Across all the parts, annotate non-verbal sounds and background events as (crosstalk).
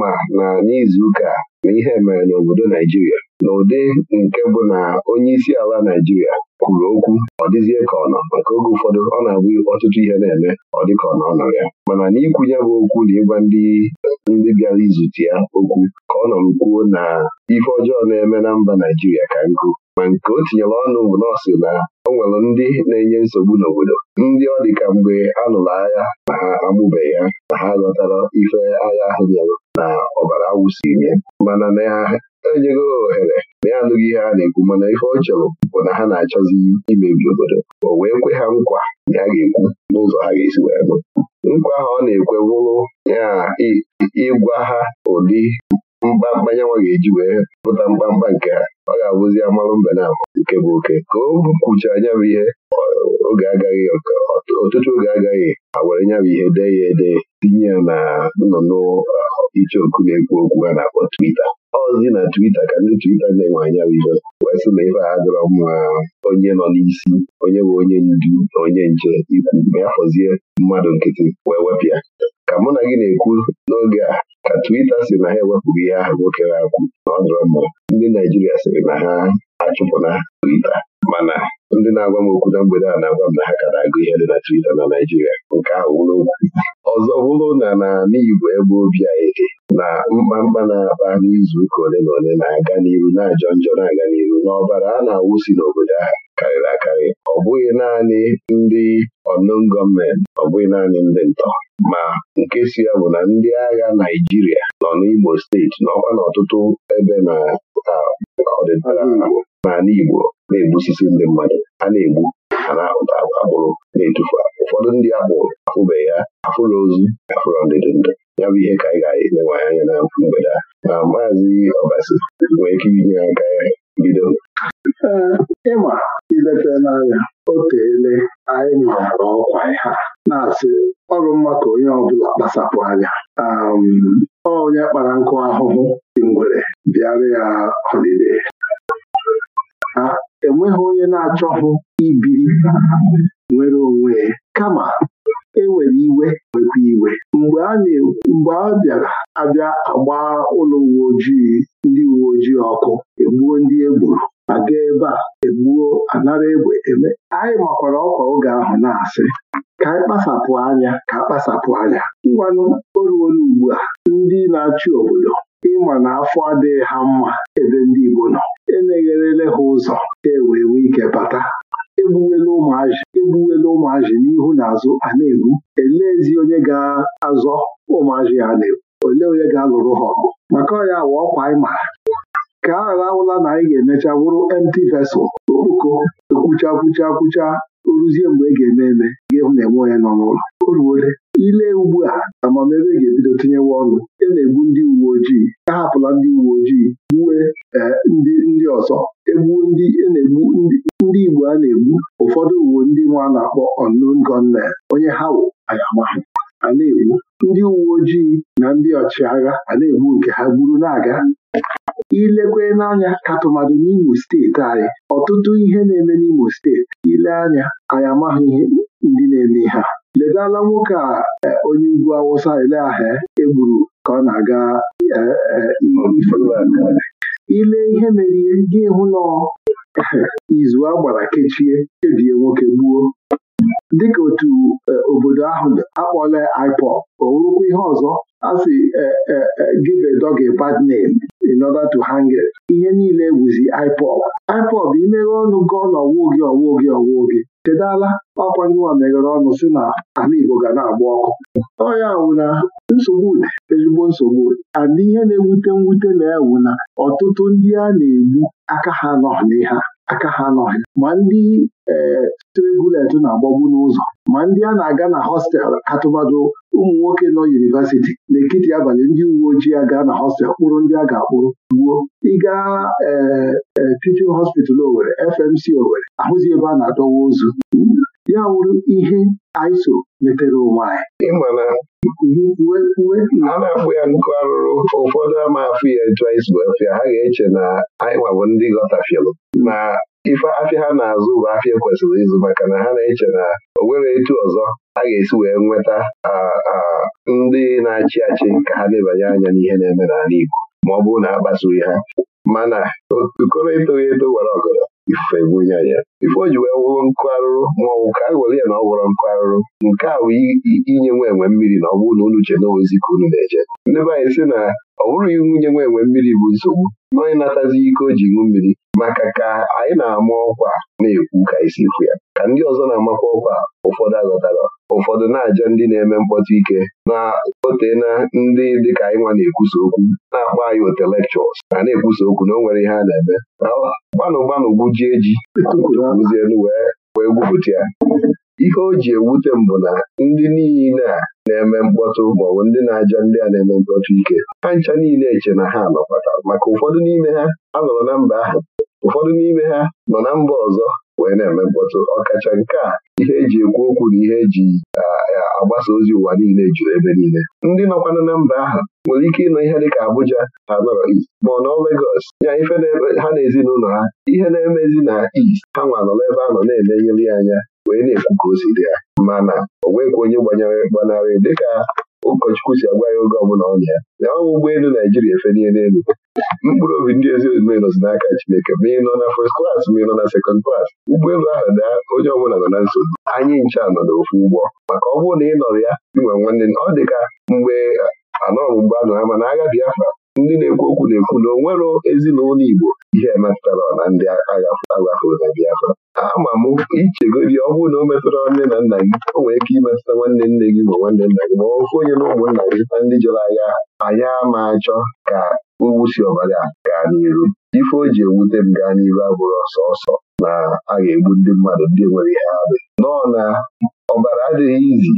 ma na n'izuụka na ihe mere n'obodo Naijiria n'ụdị nke bụ na onye isi ala Naijiria kwuru okwu ọ dịzie ka ọ nọ maka oge ụfọdụ ọ na-abụ ọtụtụ ihe na-eme ọ dị ka ọ nọ ya mana n'ikwu ya bụ okwu na ịgwa ndị ndị bịara izute ya okwu ka ọ nọ kwuo na ife ọjọọ na-eme na mba Naijiria ka nkụ ma nke o tinyere ọnụ bụ nọọsụ na o nwere ndị na-enye nsogbu n'obodo ndị ọ dịka mgbe a lụrụ agha na ha amụbeghị ha na ha ghọtara ife agha ahụ bịara na ọbara awụsinye mana na ha enyego ohere na ya anụghị ihe a na-ekwu mana ife ọ chọrọ bụ na ha na-achọzi imebi obodo o wee kwe ha nkwa na ya ga-ekwu n'ụzọ ha ga-esi wee nụ nkwa ahụ ọ na-ekwe wụrụ ya ịgwa ha ụdị mkpamkpa nyanwa ga-eji wee pụta mkpamkpa nke ha ọ ga-abụzi amalụ mbe na nke bụ oke ka o kwuchara anya bụ ihe oge agaghị ọtụtụ oge agaghị awere nya bụ ihe dee ya ede tinye ya na nnụnụ uh, oku na-ekwu okwu ha na-akpọ twita ọzi na twita ka ndị twita na-enwe anya bụ ihe wee sị na ife a dọrọ mma onye nọ n'isi onye bụ onye ndu na onye nche ikwu ma ya fọzie mmadụ nkịtị wee wepụ ya ka mụ na gị na-ekwu n'oge a ka Twitter si na ha ewepụrụ ihe ahụ nwoke ha kwu na ọdụrọ mma ndị Naijiria sịrị na ha achụpụna Twitter mana ndị na-agwa m okwu na mgbede a na-agwa m na ha ka na-agụ ihe dị na Twita na Naịjirịa nke ahụ wụrụ ọzọ bụrụ na n'ala Igbo ebe obi anyị dị na mkpamkpa na-akpa n'izu ụka ole na ole na-aga n'iru na-ajọ njọ na-aga n'iru n'ọbara a na-awụsi n'obodo ahụ karịrị akarị ọ bụghị naanị ndị ọnụn gọọmenti ọ bụghị naanị ndị ntọ ma nke si ya bụ na ndị agha Naịjirịa nọ n'Igbo steeti n'ọkwa n'ọtụtụ ebe na ọdịnala Igbo n'ala Igbo na-egbusisi ndị mmadụ a na-egbu a na-ahụta akpụrụ, na-etufu ụfọdụ ndị agbụrụ afụbeghị ya afụrụ ozu afụrụ ndịdị ndụ ya bụ ihe ka anyị ga-elewe anya na mgbede a na maazị ọbasi nwee ike inye aka ya bido ịma ileta n'anya o anyị nọrọ ọkwa ha na-asị ọrụ mma ka onye ọbụla kpasapụ anya onye kpara nkụ ahụhụ dị ngwere bịara ya ọdịde enweghị onye na-achọghị ibiri nwere onwe ya kama e nwere iwe nwekwa iwe mgbe a mgbe bịara abịa agba ụlọ uwe ojii ndị uwe ojii ọkụ egbuo ndị egburu aga ebe a egbuo anara egbe eme anyị makwara ọkwa oge ahụ na-asị ka anyị kpasapụ anya ka kpasapụ anya ngwanụ oruola ugbu a ndị na-achị obodo ịma na afọ adịghị ha mma ebe ndị Igbo nọ emegherele ha ụzọ ka e wee nwee ike bata egbuwela ụmụazị egbuwela ụmụazị n'ihu na azụ a na-egbu eleezi onye ga-azọ ụmụazị a na-egbu olee onye ga-alụrụ ha ọgụ maka ọya wa ọkwa anyị mara ka a ghara na anyị ga-emecha wụrụ empty vessel okpuko ekwucha kwucha kwucha ruzie mgbe e ga-eme eme m na-enwe onye nọ n'ụlọ o ile ugbu a amamebe ga-ebido tinyewa ọnụ e na-egbu ndị uwe ojii a hapụla ndị uwe ojii gbue eh, ndị ndị ọzọ egbu ndị e na-egbu ndị Igbo a na-egbu ụfọdụ uwe ndị nwa na-akpọ Ọnụn gunmen onye ha wụ anyamaha a na-egbu ndị uwe ojii na ndị ọchịagha a na-egbu nke ha gburu na-aga ilekwe n'anya ka tụmadụ n'Imo steeti anyị ọtụtụ ihe na-eme n'Imo steeti ile anya anyị amaghị ihe ndị na-eme ha. ledala nwoke a e, onye ugwu awụsa ele ahụ egburu ka ọ na-aga e, e, ile ihe mere ihe gị hụ na izu a gbara kechie kebie nwoke gbuo dịka otu obodo ahụ akpọla IPOB o ihe ọzọ a si give a dog a bad name in order to hang it ihe niile wụzi IPOB bụ imeghe ọnụ gị na ọwụ gị ọwụ gị ọwụ gị chedala ọkwa nwa meghere ọnụ si na ala Igbo ga na-agba ọkụ ọya wụ na nsogbu ezigbo nsogbu ada ihe na-ewute mwute na ewu na ọtụtụ ndị a na-egbu aka ha nọ n'ihe aka ha anọghị ma ndị ee na-agbagbu n'ụzọ ma ndị a na-aga na hostelụ katụmadụ ụmụ nwoke nọ na-ekiti abalị ndị uwe ojii aga na hostelụ kpụrụ ndị a ga-akpụrụ gbuo ịga ee teaching hospital Owerri FMC Owerri ahụzi ebe a na-adọwa ozu ya wụrụ ihe iso metere onwe anyị a na-akpụ ya nkụ arụrụ ụfọdụ ama afụ ya etu anyị afịa ha ga-eche na anyị nwabụ ndị ghọtafielụ na ife afịa ha na-azụ bụ afịa kwesịrị ịzụ maka na ha na-eche na o nwere etu ọzọ a ga-esi wee nweta ndị na-achị achị ka ha lebanye anya n'ihe na-eme n'ala Igbo ma ọ bụrụ na a kpasughị ha mana okoro etoghị eto gwara ọgọdọ ife bunye anya ife o ji wee wụrụ nkụ arụrụ ma ọ bụ ka a ya na ọ gwọrọ nkụ arụrụ nke a bụ inye nwa enwe mmiri na ọ bụrụ na uche na ozi ka unu na-eje ndị be anyị sị na ọ bụrụ ihu nye nwa enwe mmiri bụ nsogbu na onye natazi ike o ji ṅụ mmiri maka ka anyị na-ama ọkwa na-ekwu ka anyị fụ ya ka ndị ọzọ na-amakwa ọkwa ụfọdụ aghọtara ụfọdụ na-aja ndị na-eme mkpọtụ ike na otee na ndị dịka anyị nwa na-ekwusa okwu na-akpọ anyị otelekchọs ma na-ekwusa okwu na o nwere ihe a na-eme gbanụ gbanụ gbujie ji kuzielu wee wee gwupụta ya ihe o ji ewute m bụ na ndị niile a na-eme mkpọtụ maọbụ ndị na-aja ndị a na-eme mkpọtụ ike ha ncha niile eche na ha nọkọtara maka ụfọdụ n'ime ha anọrọ na mba ahụ ụfọdụ n'ime ha nọ na mba ọzọ wee na-eme mkpọtụ ọkacha nke a ihe eji ekwu okwu na ihe eji agbasa ozi ụwa niile juru ebe niile ndị nọkwana na mba ahụ nwere ike ịnọ ihe dịka Abuja ha nọrọ East ma ọ nọ Lagos ya ife ha na ezinụlọ ha ihe na-emezi na East ha nwa nọrọ ebe a nọ na ya anya wee na-ekwu ka o si dị ya mana o onye gbanyere gbanarị dịka ụkọchukwu si agwa ya oge ọbụla ọ ya na bụ ụgbọelu Naijiria efelie n'elu mkpụrụ obi ndị ezi omume nọzi n'aka Chineke ma ị nọ na first class ma ị nọ na second class ụgbọelu ahụ daa onye ọbụla nọ na nsogbu anyị ncha nọ n'ofu ụgbọ maka ọ bụrụ na ị nọrọ ya inwe nwanne ọ dị ka mgbe anọ mgbe anọ ama na agha Biafra ndị na-ekwu okwu na-ekwu na onwero ezinụlọ Igbo ihe emetụtara na ndị aghafuru na Biafra ama m ichegodi ọ na o metụtara nne na nna gị o nwere ike imetụta nwanne nne gị ma nwanne nna gị ma ofu onye na ụmụnna gị na ndị jere agha anya ama achọ ka owusi ọbara gaa n'iru ife o ji ewute m gaa n'iru abụrụ ọsọ na a ga-egbu ndị mmadụ ndị nwere ihe arụ nọọ na ọbara adịghị izi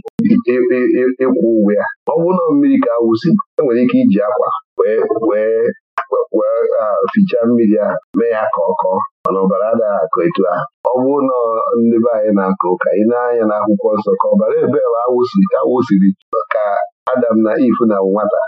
ịkwụ e, e, e, ụgwọ ya ọ na mmiri ka awụsi e nwere ike iji akwa wee wee wee fichaa mmiri a! mee ya ka ọ kọọ mana ọbara anaghị akọ etu a. ọ bụrụ na ndị be anyị na-akọ ụka ị na-anya n'akwụkwọ nsọ ka ọbara ebe awụsiri ka Adam na Iv na nwata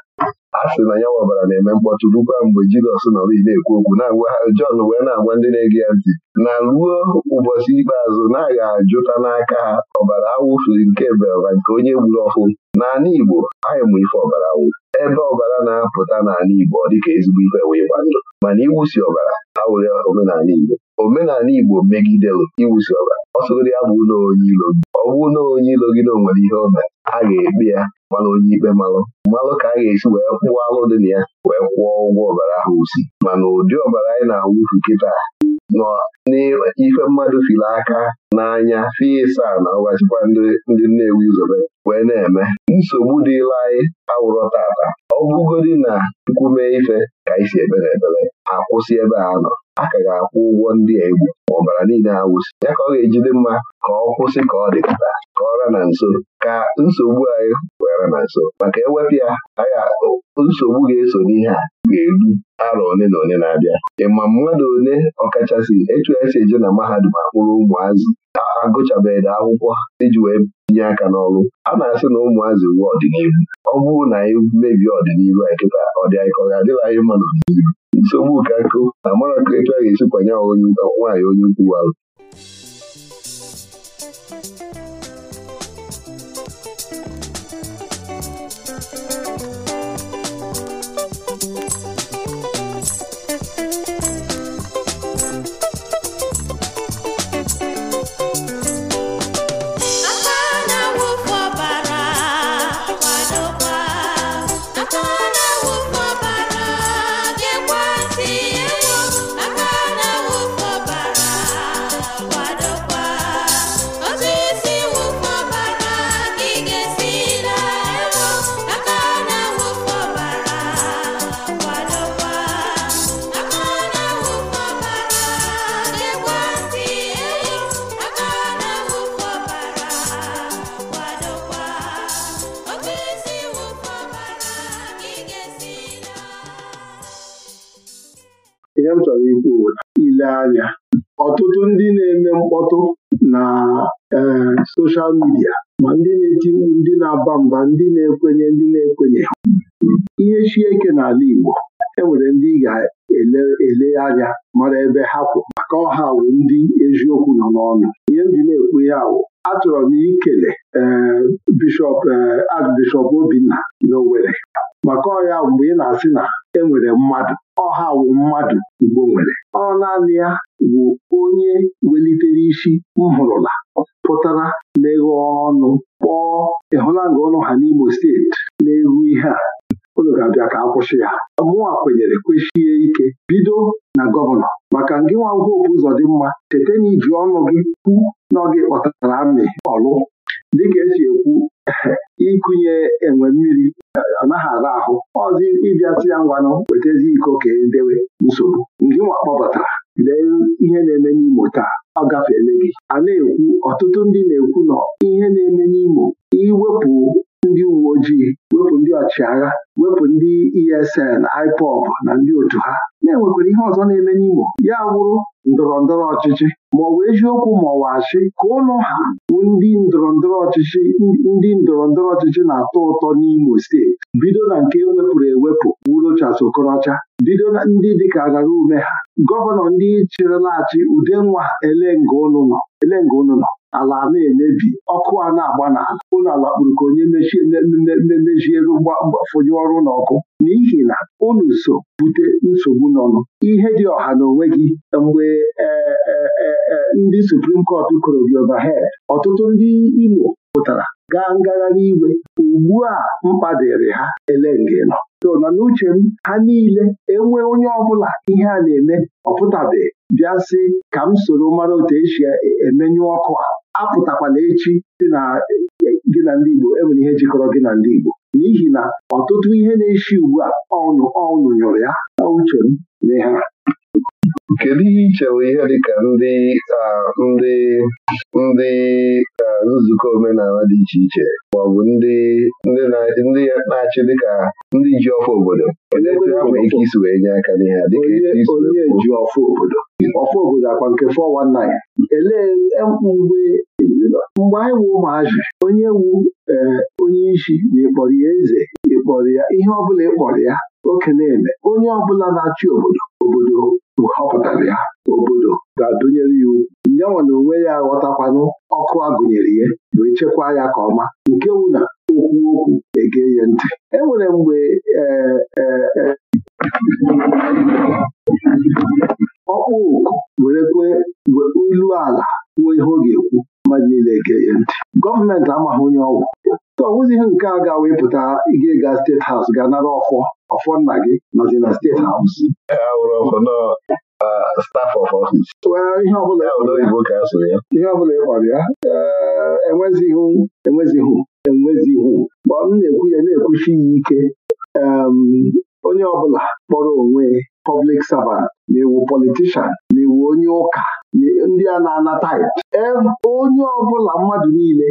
a sị na ya ọbara na-eme mkpọtụ rukwa mgbe Jizọs nọrọ na-ekwu okwu na-agwa Jọn wee na-agwa ndị na-ege ya ntị na ruo ụbọchị ikpeazụ na-aga ajụta n'aka ha ọbara awụfiri nke belma nke onye gburu ọfụ n'ala Igbo anyị mụ ife ọbara awụ ebe ọbara na-apụta n'ala Igbo ọ dịka ezigbo ife wee ịgba ndụ mana iwusi ọbara awụrị omenala Igbo omenala Igbo megidelụ iwusi ọbara ọ sogoro ya bụ ụlọ onye ilo gị ọ bụ na onye ilo gị na o nwere ihe ọbara a ga-ekpe ya mara onye ikpe malụ mmalụ ka a ga-esi wee kwụọ alụ dị na ya wee kwụọ ụgwọ ọbara ahụ usi mana ụdị ọbara anyị na-awụfu kịta nọ n'ife mmadụ fili aka n'anya fi ịsa na ọgwachikwa ndị ewu izobe wee na-eme nsogbu dịla anyị awụrọ tata ọ bụgodị na nkwume ife ka anyị si ebere ebere akwụsị ebe a nọ a ka ga-akwụ ụgwọ ndị a egwu ma ọbara niile awụsị ya ka ọ ga-ejide mma ka ọ kwụsị ka ọ dịkọta ka ọra na nso ka nsogbu anyị were na nso maka ewepụ ya nsogbu ga-eso n'ihe a ga-eru arọ one na one na-abịa ịma mmadụ ole ọkachasị etu esi eje na mahadum akpụrụ ụmụazị agụchabeghị akwụkwọ iji wee tinye aka n'ọrụ a na-asị na ụmụazị uwe ọdịnihu ọ bụrụ na anyị e mebie ọdịnihu a kịta ọ anyị ọ ga-adịghị anyị mma n'ọdịnihu nsogbu ka nkụ na ka etu a ga-esi kwanye nwaanyị onye ukwu alụ anya ọtụtụ ndị na-eme mkpọtụ na ee soshal midia ma ndị na-eti mkpu ndị na-aba mba ndị na-ekwenye ndị na-ekwenye ihe chieke n'ala Igbo enwere ndị ị ga-ele anya mara ebe ha kwụ maka ọha awụ ndị eziokwu nọ n'ọnụ ihe m ji na-ekwu ya awụ achọrọ m ikele e, bishọp e, Archbishọp Obinna n'Owerri maka ya mgbe ị na-asị na enwere mmadụ ọha wụ mmadụ Igbo nwere ọ naanị ya bụ onye welitere isi nhụrụla pụtara meghe ọnụ kpọọ nga ọnụ ha n'Imo steeti na-eru ihe a unu ga-abịa ka akwụsị ya mụnwa kwenyere kwechie ike bido na gọvanọ maka ngị nwa ngwopụ ụzọ dị mma cheta na iji ọnụ gị kwu na ọ gị kpọtara amị ọlụ dịka esi ekwu ịkụnye enwe mmiri ọ naghị ara ahụ ọzi ịbịasị ya ngwanụ wetazi iko ka edewe nsogbu nke nwa kpọbatara lee ihe na-eme n'Imo taa ọ gafere gị a na-ekwu ọtụtụ ndị na-ekwu nọ ihe na-eme n'Imo iwepụ ndị uwe ojii wepụ ndị ọchịagha wepụ ndị ESN IPOB na ndị otu ha na-enwekwara ihe ọzọ na-eme n'Imo ya bụrụ ndọrọ ndọrọ ọchịchị ma ọ bụ eziokwu ma ọ bụ ka ụnụ ha ndị ndọrọ ndọrọ ọchịchị ndị ndọrọ ndọrọ ọchịchị na-atọ ụtọ n'Imo steeti bido na nke ewepụrụ ewepụ Urochas Okorocha bido na ndị dịka agara ume ha gọvanọ ndị chịrịla achị udenwa elenga ụnụ nọ ala na-emebi ọkụ a na-agba n'ala ụlọ ala kpụrụ ka onye memejielu fụnye ọrụ na ọkụ. n'ihi na unu so bute nsogbu n'ọnụ ihe dị ọha na onwe gị mgbe e, e, e, ndị suprim kọt kụrụ gị overhead ọtụtụ ndị Imo pụtara gaa ngagharị igwe. ugbu a mkpa dịrị ha ele nọ so nọ n'uche m ha niile enwe onye ọbụla ihe a na-eme ọpụtabeghị bịa sị ka m soro mara otu esi e, emenye ọkụ a apụtakwala echi dị na gị na ndị Igbo enwere ihe jikọrọ gị na ndị Igbo n'ihi na ọtụtụ ihe na-eshi ugbu a ọnụ ọnụ nyụrụ ya na uche m na kedu ihe ị chere ihe dịka ndị ndị ndị nzukọ omenala dị iche iche ma ọ bụ ndị ndị na-achị dịka ndị ji ọfọ obodo nwere ike isi wee nye aka n'ihe onye ọfụ obodo ọfụ obodo akwa nke 419 elee mgbe mgbe anyị wu ụmụazị onye wu onye isi na ịkpọrọ ya eze ịkpọrọ ya ihe ọbụla ịkpọrọ ya oke na-eme onye ọbụla na-achị obodo obodo họpụtara ya obodo ga-adụnyere ya ugwu nyanwa na onwe ya aghọtakwanụ ọkụ agụnyere ya wee chekwaa ya ka ọma nke wụ na okwu okwu ege ya ntị e nwere mgbe e, e, e, ọkpụ oku werekwe ilu ala kwuo ihe ọ ga-ekwu mmadụ niile ege ya ntị gọọmenti amaghị onye ọgwụ so ọ nke a ga-wee pụta ịga ga steeti haus ga nara ọfọ ọfọ nna gị nọzi na steeti haus ihe ọbụla ịkpọrọ ya enwezighị enwezighị enwezihụ ma ọ na-ekwu ya na-ekwuchi ike onye ọbụla kpọrọ onwe pọblik servant ma ewu politishan ma ewu onye ụka ndị a na-anata onye ọbụla mmadụ niile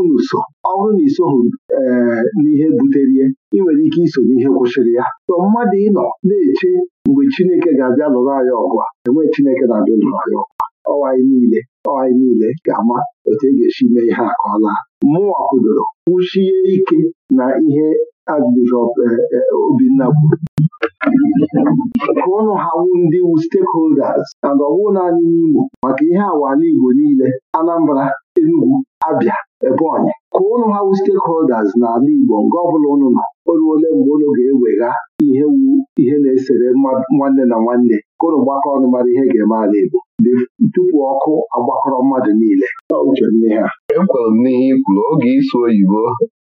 unu so ọ bụrụ na isoghị eh, n'ihe buterie ị nwere ike iso n'ihe kwụsịrị ya sọ mmadụ ịnọ na-eche mgbe Chineke ga-abịa lụrụ anyị ọgụ a enwee Chineke na-abịa lụrụ anyị ọgụ ọwa niile ọwa niile ga-ama otu e ga-esi mee ihe a ka ọ laa mụnwa kwudoro kwụchie ike na ihe Archbishop eh, eh, Obinna kwuru ka ụnụ ha wu ndị stakeholders and ọwụ naanị n'Imo maka ihe awala Igbo niile Anambra Enugu Abia Ebonyi ka ụnụ ha wu stakeholders n'ala Igbo nke ọbụla ụnụ na o ruole mgbe ụnụ ga-ewega ihe na-esere nwanne na nwanne kụrụ gbakọ ọnụ mara ihe ga-eme ala Igbo tupu ọkụ agbakọrọ mmadụ niile ekwere m n'ihe i kwuru oge ịsụ oyibo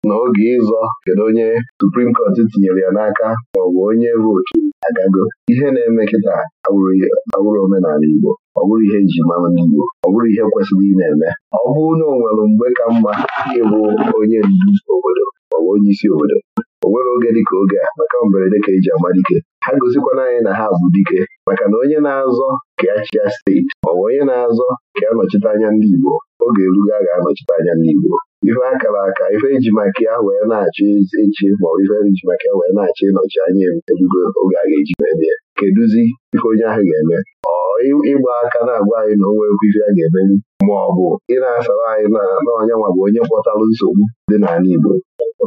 na oge ịzọ kedu onye Suprim Court tinyere ya n'aka ma ọ bụ onye vootu agago ihe na-eme kịta awụrụ omenala Igbo ọ bụrụ ihe eji mara ndị Igbo ọ bụrụ ihe kwesịrị ị na-eme ọ bụrụ na ọ nwere mgbe ka mma ịbụ onye ndu obodo ma ọ bụ onye isi obodo o nwere oge dịka oge a maka mberede ka eji ama dike ha gozikwana anyị na ha bụ dike maka na onye na-azọ ka ya chịa steeti maọbụ bụ onye na-azọ ka ya nọchite anya ndị Igbo oge erugo ga-anọchite anya ndị Igbo ife akara aka ife eji maka ya wee na-achị echi ma ife eji maka ya wee na-achị ịnọchi anya erugo oge a ga-eji mebe Kedụzi keduzi ife onye ahụ ga-eme ọ ịgba aka na-agwa anyị na onwe ife a ga-emeri ma ị na-asara anyị na n'ọnya nwa bụ onye kpọtara nsogbu dị n'ala Igbo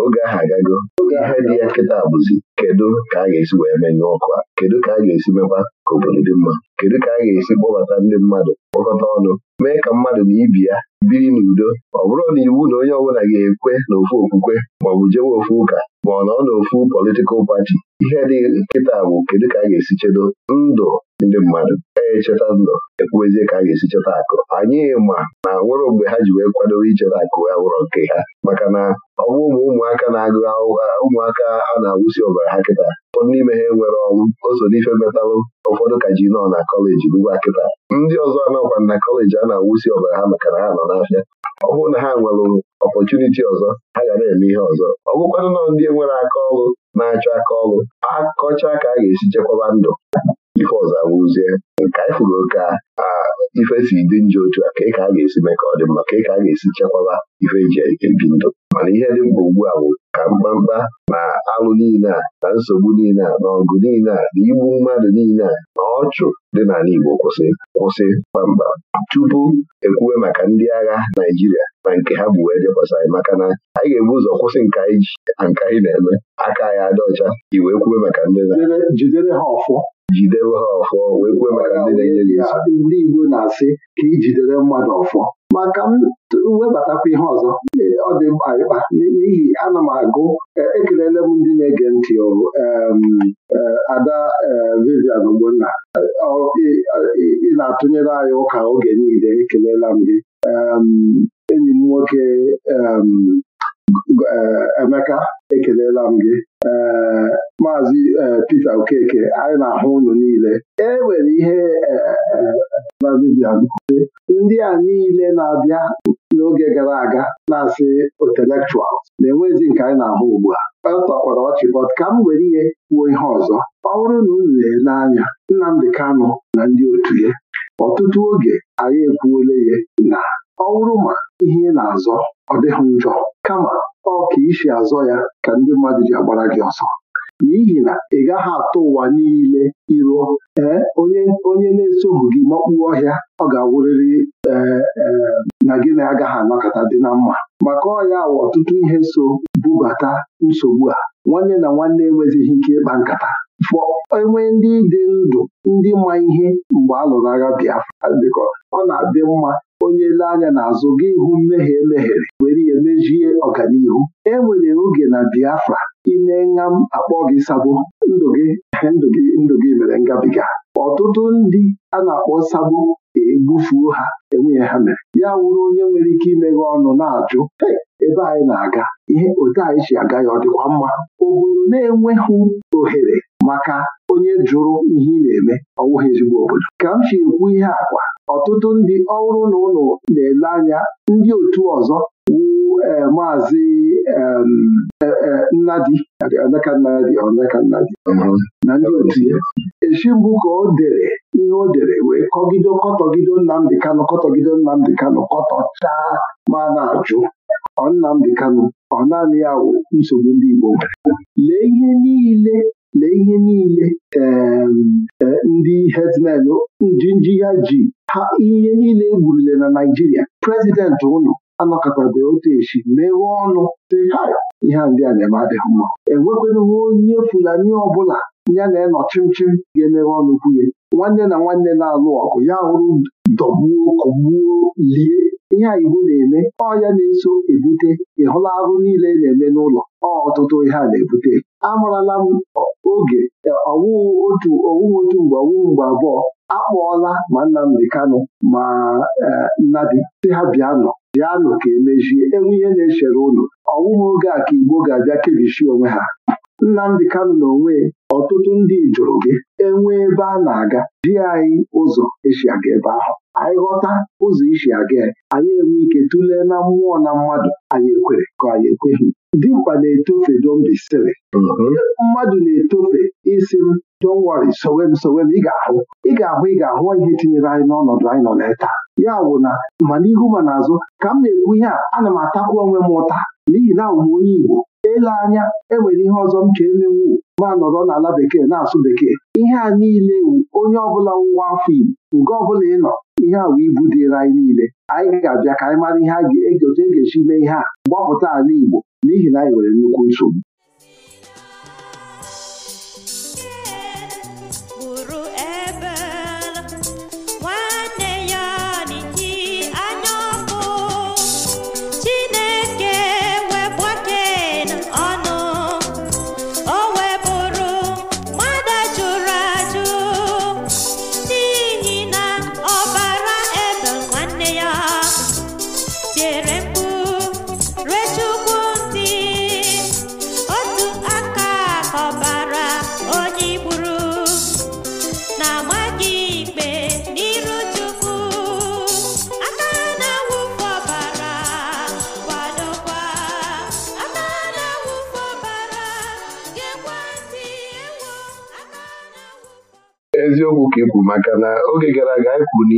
oge ahụ agago ihe dị ya nkịta bụzi kedu ka a ga-esi wee menye ọkụ a kedu ka a ga-esi mekwa ka obodo dị mma kedu ka a ga-esi kpọbata ndị mmadụ kpọkọta ọnụ mee ka mmadụ na ibi ya biri n'udo ọ bụrụ na iwu na onye ọbụla ga-ekwe na ofu okwukwe maọbụ jewe ofu ụka ma ọ nọ n'ofu politikal pati ihe dị nkịta bụ kedu ka a ga-esi chedo ndụ ndị mmadụ echeta ndụ ekwuwezie ka a ga-esi cheta akụ anyị ma na nwere mgbe ha ji wee kwadoo icheta akụ ya wụrọ nke ha maka na ọ bụ ụmụ ụmụaka na-agụ ụmụaka a na-awụsi ọbara ha kịta ụfọdụ n'ime ha nwere ọrụ ozodife metalụ ụfọdụ ka ji nọ na kọleji n'ugbu kịta ndị ọzọ anọkwa na kọleji a na-awụsi ọbara ha maka na ha nọ n'afịa ọ bụrụ na ha nwere ọpọchuniti ọzọ ha ga na-eme ihe ọzọ ọ bụkwanụ nọ ndị nwere aka ọrụ na-achọ aka ọrụ akọcha ka a ga-esi chekwaba ndụ ife ọzọ awụzie ka anyị fụrụ oke a ife e si dị njọ otu a ka ị ka a ga-esi mee ka ọ dị mma ka ị ka a ga-esi chekwaba ife eji ebi ndụ mana ihe dị mkpa ugbu a bụ ka mkpamkpa na alụ niile a na nsogbu niile a na ọgụ niile a na igbu mmadụ niile a na ọchụ dị n'ala Igbo kwụsị kwụsị kpamkpam tupu ekwuwe maka ndị agha Naịjirịa na nke ha bụ wee dekwasị anyị maka na anyị ga-ebu ụzọ kwụsị nke anyị ji na nke anyị na-eme aka anyị adị ọcha iwee kwuwe maka ndị na jidewe ha ọfọ wee kwe maka ndị na-enye ya ndị Igbo na-asị ka ijidere mmadụ ọfọ maka m webatakwa ihe ọzọ ọ dị mkpa ịkpa n'ihi ana m agụ e, ekelele m ndị na-ege ntị e, Ada e, Vivian Ogbonna ị na-atụnyere anyị ụka oge niile ekelela m gị enyi m nwoke Eh, Emeka ekelela m gị eh, maazị eh, pete Okeke anyị na-ahụ unu niile e nwere ihe ndị a niile na-abịa n'oge gara aga na-asị intellectuals na-enwezi nke anyị na-ahụ ugbu a ọ tọkwara ọchị bọt ka m were ihe kwuo ihe ọzọ ọ bụrụ na unu na-ele Nnamdi Kano na ndị otu ya ọtụtụ oge anyị ekwuola ya na ọ bụrụ ma ihe ị na-azọ ọ dịghị njọ kama ọ ka isi azọ ya ka ndị mmadụ ji agbara gị ọsọ n'ihi na ị gaghị atụ ụwa niile iruo ee onye na-esoghị gị makpuo ọhịa ọ ga-awụrịrị e, e, na gị na agaghị anọkọta dị na mma maka ọhịa wa ọtụtụ ihe so bubata nsogbu a nwanne na nwanne enwezighị ike ịkpa nkata fọ enwe ndị dị ndụ ndị ma ihe mgbe a lụrụ agha Biafra bikọ ọ na-adị mma onye lee anya n'azụ gị hụ mmehie emehiere were ihe mejie ọganihu e nwere oge na Biafra ime m akpọ gị sabo ndụ gị ndụ gị ndụ gị mere ngabiga ọtụtụ ndị a na-akpọ sabo egbufuo ha enweghị ha mere ya wụrụ onye nwere ike imeghe ọnụ na-ajụ ebe anyị na-aga ihe odee anyị si aga ya ọ dịkwa mma obodo na-enweghị ohere maka onye jụrụ ihe ị na-eme ọwụghị ezigbo obodo ka m si ekwu ihe akwa ọtụtụ ndị ọhụrụ na ụlọ na-ele anya ndị otu ọzọ wu e, maazị e, e, Nnadi na ndị otu ya echi mbụ ka o dere ihe o dere wee kọgido kọtọgido Nnamdị Kanụ kọtọgido Nnamdị Kanụ kọtọchaa ma na-ajụ ọ Nnamdị Kanụ ọ naanị ya wụ nsogbu ndị Igbo nwere lee ihe niile na ihe niile e, ndị herdsmen njinji ya ji ha ihe niile egburule na Naijiria prezidenti ụnụ anọkọtabe otu echi mewe ọnụ dị ihe ndị a na-eme adịghị mma enwekwenụwa onye Fulani ọbụla ya na-enọ chimchim ga emeghe ọnụ kwunye nwanne na nwanne na-alụ ọgụ ya hụrụ dọgbuo kọgbuo lie ihe a iwu na-eme ọ ya na-eso ebute ịhụla arụ niile e na-eme n'ụlọ ọ ọtụtụ ihe a na-ebute amarala m oge e, ọwụwụ otu owuwe otu mgbe ọwụwụ mgbe abụọ akpọọla ma dị kanụ ma e, Nnadi si ha bịanụ bịanụ ka emechie enwe ihe na-echere ụlọ ọwụwụ oge a ka Igbo ga-abịa kebichi onwe ha Nnamdi Kano na onwe ọtụtụ ndị jụrụ gị enwe ebe a na-aga ji anyị ụzọ esi aga ebe ahụ anyị ghọta ụzọ isi aga anyị enwe ike tụlee na mmụọ na mmadụ anyị ekwere ka anyị ekweghị dimkpa na-etofe dombisiri mm-hmm. mmadụ na-etofe isi m don't worry sowe m sowe m ị ga-ahụ ị ga-ahụ ị ga-ahụ ihe tinyere anyị n'ọnọdụ anyị nọ na taa ya bụ na ma n'ihu ma n'azụ ka m na-ekwu ihe a ana m atakwu onwe m ụta n'ihi na ụmụ onye Igbo ele anya enwere ihe ọzọ m ka emewu ma nọrọ n'ala bekee na-asụ bekee ihe a niile wu onye ọbụla nwa afọ Igbo nke ọbụla ị nọ ihe a ibu dịrị anyị niile anyị ga-abịa ka anyị mara ihe a ga e e ga-esi mee ihe a gbapụta ala Igbo n'ihi na anyị e nwere nnukwu nsogbu nke maka na oge gara aga anyị kwuru na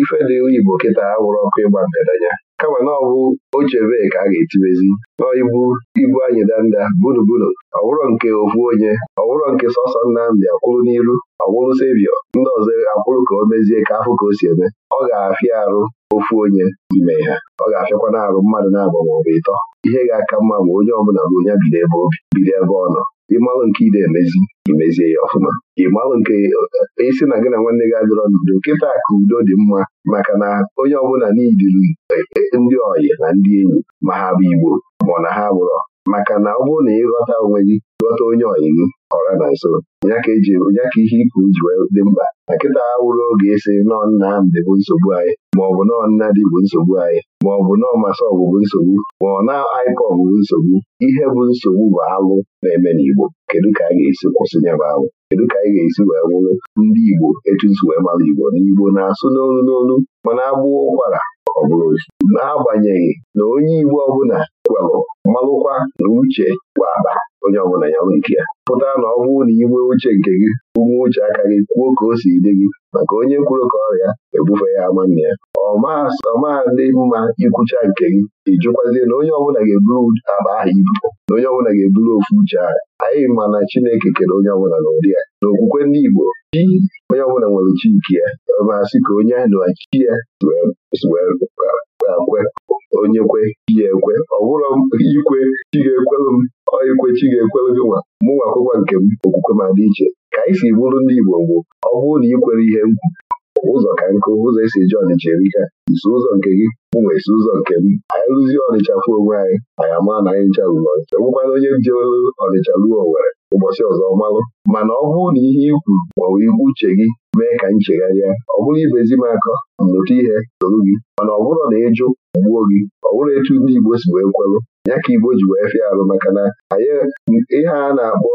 ife dị Igbo kịta awụrụ ọkụ ịgba ya, kama na ọ bụ ochebe ka a ga etiwezi ibu ibu anyị danda gburugburu ọwụrụ nke ofu onye ọwụrụ nke sọsọ Nnamdị kwụrụ n'iru ọwụrụ sevio ndị ọzọ akwụrụ ka o mezie ka afụ ka o si eme ọ ga-afịa arụ ofu onye ime ya. ọ ga-afịakwana arụ mmadụ na-abụ maọbụ ịtọ ihe ga-aka mma ma onye ọbụla bụ onye bido ebe obi bido ebe ọ nọ ịmalụ nke ide emezi imezie ya ọfụma ịmalụ nke isi e, na gị na nwanne gị adịrọ n'udo nkịta ka udo dị mma maka na onye ọbụla niidiri e, e, ndị ọyị na ndị enyi ma ha bụ Igbo ma na ha gbụrọ maka na ọ bụrụ na ịghọta onwe gị ghọta onye ọyị ọra na nso ya ka ihe ikwu ji wee dị mkpa na nkịta ha wụrụ oge esi nọọ nna Nnamdị bụ nsogbu anyị maọbụ nọọ dị bụ nsogbu anyị maọbụ nọọ masị bụ nsogbu ma ọ na IPOB bụ nsogbu ihe bụ nsogbu bụ alụ na-eme n'Igbo kedu ka a ga-esi kwụsị ya alụ kedu ka anyị ga-esi wee wụrụ ndị Igbo etu esi wee mara Igbo na Igbo na-asụ n'olu n'olu mana agbụọ ụkwara ọ bụrụ n'agbanyeghị na onye Igbo ọbụla kwelụ malụkwa na uche bụ akpa onye ọbụla ya nke ya pụtara na ọ bụrụ na inwe uche nke gị ume uche aka gị kwuo ka o si dị gị maka onye kwuru ka ọrịa ebufe ya ama ya ọma ndị mma ikwucha nke gị ịjụkwazie na onye ọbụla ga-eburu aba ahụ ibu na onye ọbụla ga-eburu ofu uche ahụ anyị ma na Chineke kere onye ọbụla n'ụdị ya na okwukwe ndị Igbo chi onye ọbụla nwere chi nke ya masị ka onye na chi ya wee ga-ekwe onye kwe ya ekwe ọ bụrụ ikwe chi ga-ekwelụ m ikwe chi ga-ekwelụ gị nwa mụ nwa akwụkwọ nke m okwukwe ma dị iche ka anyị si bụrụ ndị Igbo bụ ọ bụrụ na ikwere ihe m ụzọ ka nkụ ụzọ esi eji ọnịcha erika isi ụzọ nke gị ụmụ isi ụzọ nke m anyị rụzie ọnịcha fụ onwe anyị anyị ama na anyị ncha rụrụ ọnịcha e nwekwana onye jewelụ ọnịcha ruo nwere ụbọchị ọzọ malụ, mana ọ bụrụ na ihe ikwu kwuru maọbụ ikwu uche gị mee ka m chegharịa ọ bụrụ ibezi m akọ mmụta ihe soro gị mana ọ bụrụ na ịjụ gbuo gị ọ bụrụ etu ndị Igbo si wee kwelụ ya ka Igbo ji wee fịa arụ maka na ihe a na-akpọ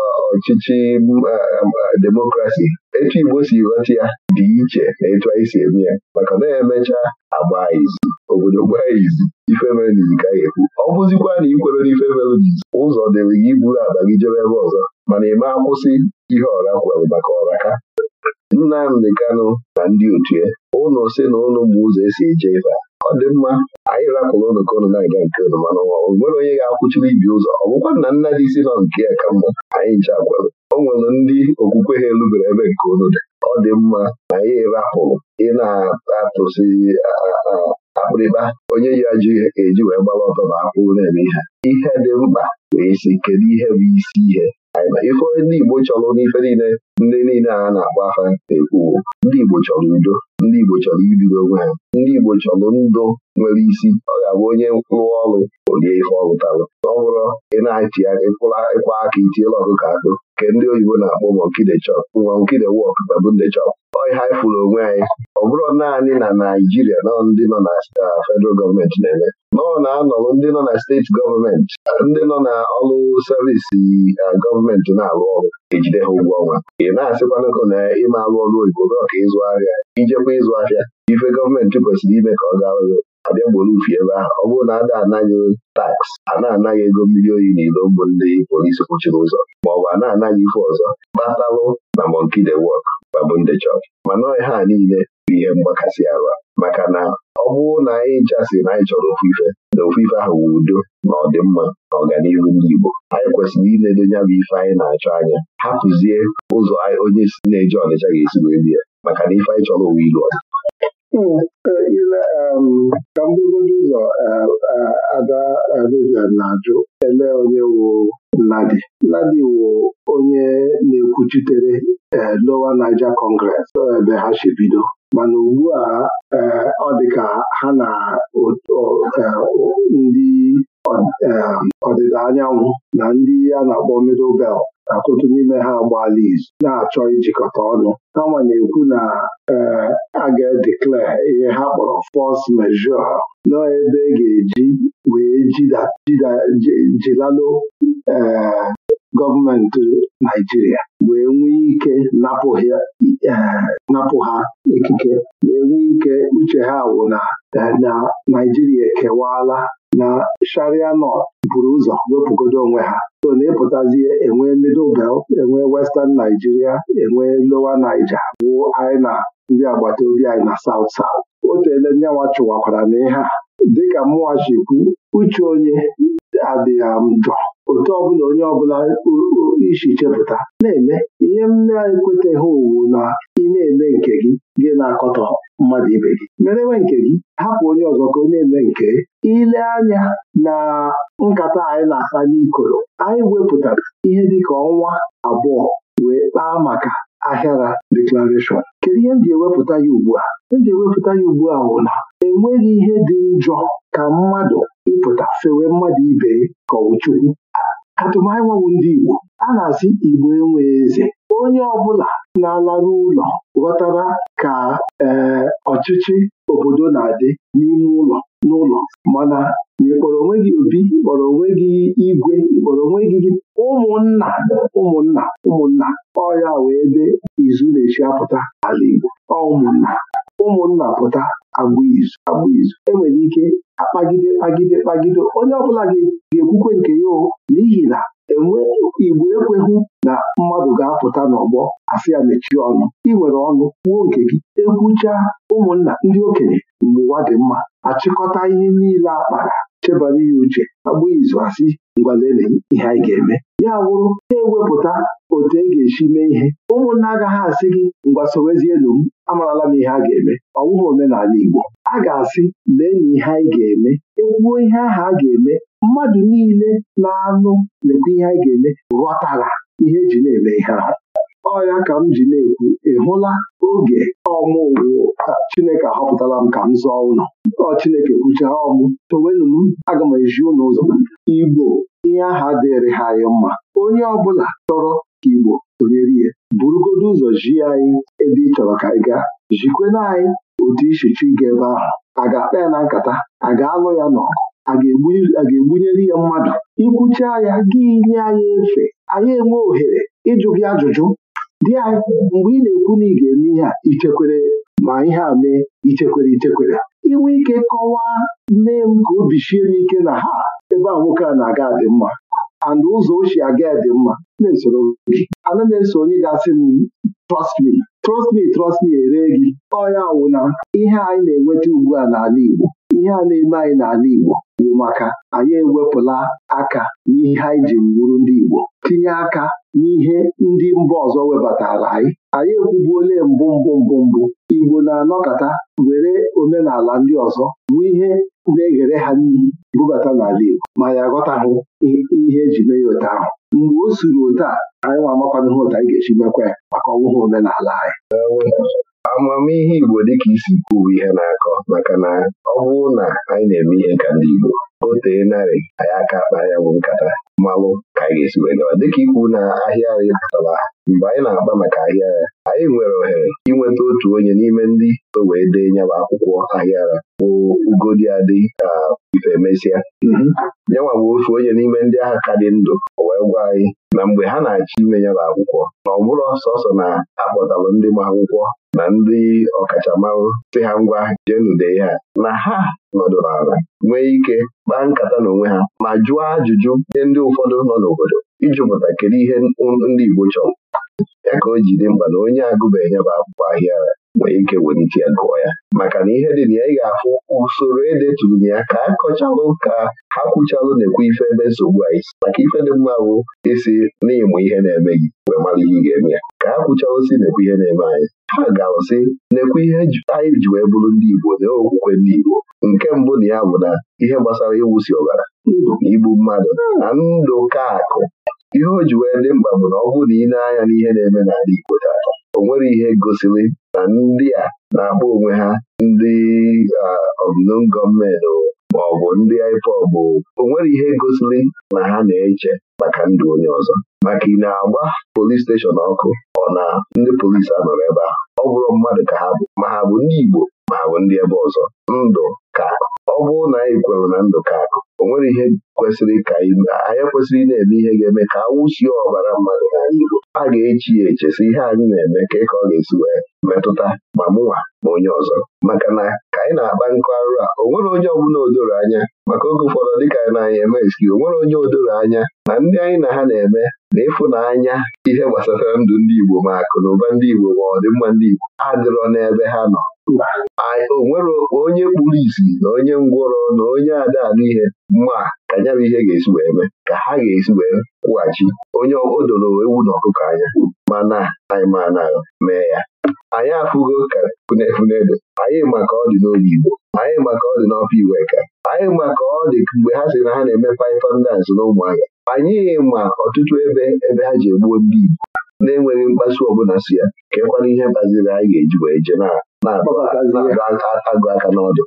uh, ọchịchị um, uh, demokrasi etu Igbo si ghọta ya dị iche na etu anyị si eme ya maka na emecha agba izu obodo gbaa izu ife n'izu ka anyị ekwu ọ bụzikwa na ikwere n'ife mere n'izu ụzọ dịrị gị buru akpa gị jebe ebe ọzọ mana ịma ma akwụsị ihe ọra kwere maka ọra Nnamdị Kanụ na ndị otu ya ụnụ si na ụnụ bụ ụzọ esi eje ife ọ dị mma anyị rapụrụ ụnụ ka ụnụ na-aga nke ụnụ mana ọ nwere onye ga-akwụchiri ibi ụzọ ọ bụkwa na nna dị isi nọ nke ya ka mma anyị nche gwara o nwere ndị okwukwe ha elubere ebe nke ụnụ dị ọ dị mma na anyị rapụrụ ị na-atụsi akpịrịkpa onye ya ji eji wee gbara ọtọ na akwụrụ na-eme ihe ihe dị mkpa wee isi kedu ihe bụ isi ihe ife ndị Igbo chọrọ n'ife niile ndị niile a na agba afa na-ekwuwo ndị Igbo chọrọ udo ndị Igbo chọrọ ibido onwe ha ndị Igbo chọrọ ndụ nwere isi ọ ga-abụ onye rụọ ọrụ olie ife ọ rụtalụ ọ bụrụ ị na-eti ịkwa aka itiela ọkụkọ akụ nke ndị oyibo na-akpọ monkide chop monkide wọk babunde chọk ọ ihe onwe anyị ọ bụrụ naanị na Naijiria nọ ndị nọ na uh, federal gọọmenti na-eme nọọ na-anọrụ ndị nọ na steeti gọọmenti ndị nọ na ọrụ servisi uh, gọọmenti na-arụ ọrụ ejide ha ụgwọ ọnwa ị na ka na ịma arụ ọrụ oyibo ka ịzụ ahịa ijekwa ịzụ ahịa ife gọọmenti kwesịrị ime ka ọ gaa ọrụ abịa gboro ufi ebe ahụ ọ bụrụ na ada anaghị taks a na-anaghị ego mmiri oyi na ilo mbụ ndị polisi kpụchiri ụzọ ma bụ a na-anaghị ife ọzọ kpatalụ na de wọk babụ ndị mana mana ha niile bụ ihe mgbakasị ala maka na ọ bụrụ na anyị nchasị na anyị chọrọ ofufe na ofuife ahụ wu udo na ọdịmma na ọganihu ndị Igbo anyị kwesịrị iledo ya bụ ife anyị na-achọ anya hapụzie ụzọ onye na-eje Ọnịcha ga-esi wee maka na ife anyị chọrọ uwe ilu ile ka mbugodo ụzọ e, e, ada Vivian na-ajụ ele onye wụ Nnadi Nnadi wụ onye na-ekwuchitere e, Lower Niger Congress ebe ha si bido mana ugbu a ọ dị ka ha na ndị ọdịda anyanwụ na ndị a na-akpọ Middle Belt ọtụtụ n'ime ha agbaala izu na-achọ ijikọta ọnụ kama na-ekwu na eh, a ga-edeclare ihe ha kpọrọ fọs majeure nọọ ebe e ga-eji wee jilalụ ee eh, gọọmenti Naijiria wee nwee ike napụ ha ikike e, wee nwee ike uche ha wụ na e, na Naijiria ekewaala na sharia nọ buru ụzọ wepụgodo onwe ha so na ịpụtazie enwee middle bel enwee western Naijiria enwee lowa Niger wụo anyị na ndị agbata obi anyị na South South o teele chụwakwara na ihe a dịka Mụwa chikwu uche onye adịghị m njọ otu ọbụla onye ọbụla isi chepụta na-eme ihe m na-ekweteghị owu na ị na-eme nke gị gị na-akọtọ mmadụ ibe gị merewe nke gị hapụ onye ọzọ ka onye eme nke ile anya na nkata anyị na-asa n'ikoro anyị wepụtara ihe dịka ọnwa abụọ wee kpaa maka ahịara deklarashọn kedu ihe m ji ewepụta ya ugbu a m ji ewepụta ya ugbu a bụ na enweghị ihe dị njọ ka mmadụ ịpụta fewe mmadụ ibe ka ọ bụ Chukwu atụmanya bụ ndị Igbo a na-asị Igbo enwe eze onye ọbụla na-alarụ ụlọ ghọtara ka ee ọchịchị obodo na-adị n'ime ụlọ n'ụlọ mana ịkpọrọ onwe gị obi ịkpọrọ onwe gị igwe ịkpọrọ onwe gị ụmụnna ụmụnna ụmụnna ọya wee ebe izu na-echi apụta ala Igbo ọ ụmụnna ụmụnna pụta agba izu enwere ike akpagide kpagide kpagide onye ọbụla ga-ekwukwe nke ya pụta n'ọgbọ ya mechie ọnụ ị nwere ọnụ kwuo nke gị ekwucha ụmụnna ndị okenye mgbe ụwa dị mma achịkọta ihe niile akpara chebara ya uche agba izu asị ngwalele ihe anyị ga-eme ya wụrụ ha ewepụta otu e ga-esi mee ihe ụmụnna agaghị asị gị ngwa ngwasowezielu m amarala m ihe a ga-eme ọwụghị omenala Igbo a ga-asị lee na ihe anyị ga-eme ekwuo ihe ahụ a ga-eme mmadụ niile na-anụ lekwa ihe anyị ga-eme ghọtara ihe eji na-eme ihe ahụ. ọya ka m ji na-ekwu ị hụla oge ọmụwụ Chineke ahọpụtala m ka m zọọ ụlọ ọ Chineke kwuchara ọmụ towenụ m aga m eji ụlọ ụzọ Igbo ihe aha dịrị ha anyị mma onye ọbụla chọrọ ka Igbo sonyere ihe burugodo ụzọ ji anyị ebe ị chọrọ ka ị gaa jikwena anyị otu ichichi ga ebe ahụ a ga-akpa ya na nkata a ga-alụ ya n'ọgụ a ga-egbunyere ya mmadụ ikwucha ya gị nye anyị efe anyị enwe ohere ịjụ gị ajụjụ dị anyị. mgbe ị na-ekwu na ị ga-eme ihe a ichekwere ma ihe a mee ichekwere ichekwere inwe ike kọwaa mee m ka obi shie m ike na ha ebe a nwoke a na-aga dị mma and ụzọ ochie aga dị mma ana m eso onye ga-asị m trust me trust me trust me ere gị ọya wụ na ihe anyị na-enweta ugbu a n'ala Igbo ihe a na-eme anyị n'ala Igbo bụ maka anyị ewepụla aka n'ihe anyị ji bụrụ ndị Igbo tinye aka n'ihe ndị mba ọzọ webatara anyị anyị ekwubuole mbụ mbụ mbụ mbụ Igbo na-anọkọta were omenala ndị ọzọ bụ ihe na-eghere ha n'ihi bubata n'ala Igbo ma ya aghọtahụ ihe eji mee ya otu ahụ mgbe o suru otu a anyị nwa amakwana ihe otu anyị ga-esi mekwa ya maka ọnwụhụ omenala anyị amamihe Igbo dịka isi kwuo ihe na-akọ maka na ọ bụrụ na anyị na-eme ihe ka ndị Igbo o tee narị anyị aka akpa ya bụ nkata mmalụ ka anyị ga-esi wee dịka ikwu na ahịa anyị pụtara mgbe anyị na-akpa maka ahịa ya anyị nwere ohere inweta otu onye n'ime ndị so wee dee nyaba akwụkwọ ahịara bụ ugodi adị ka ife mesịa nyanwa mhm. bụ ofu onye n'ime ndị agha ka dị ndụ o wee gwa anyị na mgbe ha na-achọ ime nyaba akwụkwọ na ọ bụrụ sọsọ na akpọtalụ ndị ma akwụkwọ na ndị ọkachamara si ha ngwa jenudee ha na ha nọdụrụ ala nwee ike kpaa nkata n'onwe ha ma jụọ ajụjụ nye ndị ụfọdụ nọ n'obodo ijụpụta kedu ihe ndị Igbo chọrọ ya ka o dị mkpa na onye agụbeghị bụ akwụkwọ ahịa nwee ike welite ya gụọ ya maka na ihe dị na ya ị ga-afụ usoro edeturu ya ka a kọchalụ ka ha kwụchalụ na-ekwe ife ebe nsogbu anyị si maka ife dị mma bụ isi n'ịmụ ihe na-eme gị wee mara ihe ị ga-eme ya ka ha kwuchalụ si na-ekwe ihe na-eme anyị ha ga-alụsị na-ekwe ihe e anyị ji wee bụrụ ndị Igbo na okwukwe ndị Igbo nke mbụ na ya bụ na ihe gbasara ịwụsi ọbara na igbu mmadụ na ndụ ka akụ ihe o ji wee dị mkpa bụ na ọ bụrụ na ị na-anya n'ihe na-eme n'ala Igbo taata o nwere ihe gosiri na ndị a na-akpọ onwe ha ndị ọmụnum gọọmenti ma ọ bụ ndị IPOB o nwere ihe gosiri na ha na-eche maka ndụ onye ọzọ maka ị na-agba polis steshọn ọkụ ọ na ndị polisi anọrọ ebe ahụ ọ bụrụ mmadụ ka ha bụ ma ha bụ ndị Igbo ma ha bụ ndị ebe ọzọ ndụ ka bụrụ na anyị kwere na ndụka akụ o nwere ihe kwesịrị ka anyị kwesịrị ị na-eme ihe ga-eme ka awụsie ọbara mmadụ n'ala Igbo a ga-echi ya si ihe anyị na-eme ka ka ọ ga-esi wee metụta ma mụnwa ma onye ọzọ maka na ka anyị na-akpa nkụ arụ a o nwere onye ọbụla odoro anya maka oge ụfọdụ dịka anyị na anya eme eski o nwere onye odoro anya na ndị anyị na ha na-eme na ịfụnanya ihe gbasara ndụ ndị Igbo ma akụ na ụba ndị Igbo ma ọdịmma ndị Igbo adịrọ n'ebe ha nọ o onye kpuru isi na onye ngwọrọ na onye ada n'ihe mma ka ya ihe ga-esi wee mee ka ha ga-esi wee kwụghachi onye odoro ewu na ọkụkọ anya mana anyị ma na mee ya anyị afụgo ka funefunedo anyị maka ọ dị n'oge Igbo anyị maka ọ dị n'ọfọ Iweka anyị maka ọ dị mgbe ha sị na ha na-eme paifandans na ụmụahịa anyị ma ọtụtụ ebe ebe ha ji egbuo ndị Igbo na-enweghị mkpasu ọbụla si ya kekwana ihe kpaziri anyị ga-eji wee jee na na-akpọkọtazi aka n'ọdụ